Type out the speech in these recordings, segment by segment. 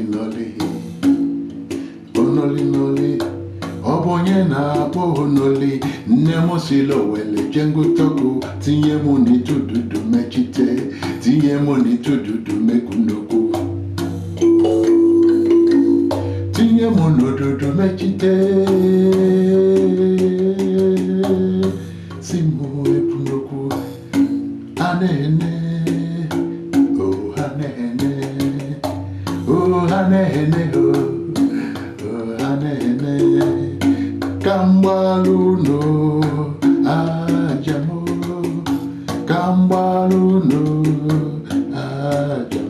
noli noli onoli noli ọ bụ onye na-akpọ onoli nne m si owele jengụtọkụ tinye m n'ịtụ dudu mechite tinye m n'ịtụ dudu tinye m n'odudu mechite si m epunokwu a na ka mgbalu unu aja ka mgbalu unu aja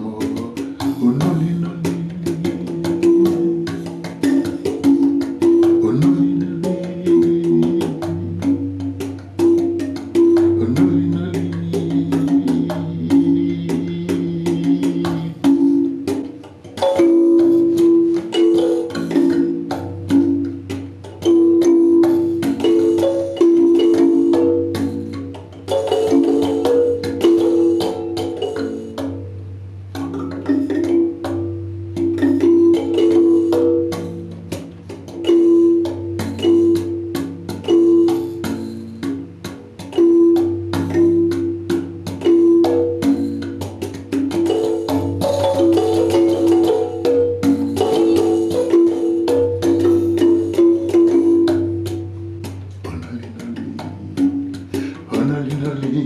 Honolulu,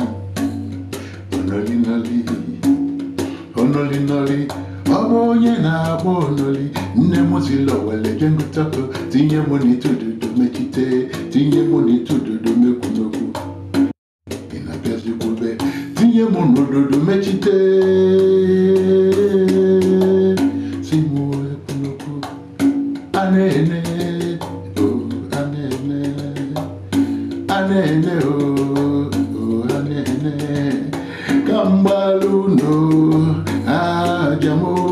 Honolulu, Honolulu. Ọ bụ onye na-agba onoli nne m zila wele je ngụtapụ tinye m n'itududu mechite tinye m n'itududu mekwumekwu ị na-abịazikwube tinye m n'ududu mechite si m ekwumekwu a na-ene mgbalu n'ajamụ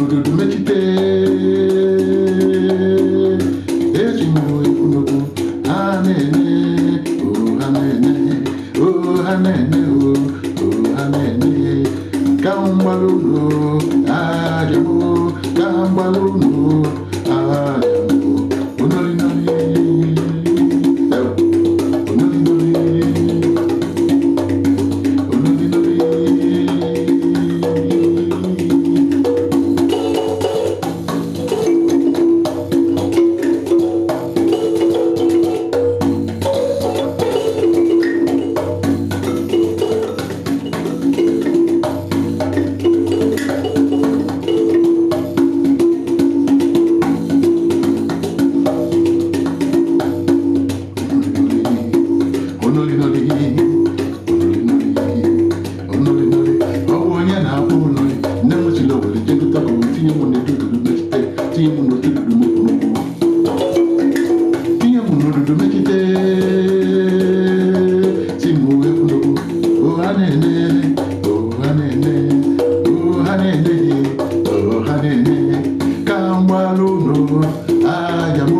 ìkùnòdòdò méjì pé èjì mú ìkùnòdò amẹ́ni o amẹ́ni o amẹ́ni o o amẹ́ni káwọn gbalóòlò àjẹmọ́ káwọn gbalóòlò. lónà àjàmọ́.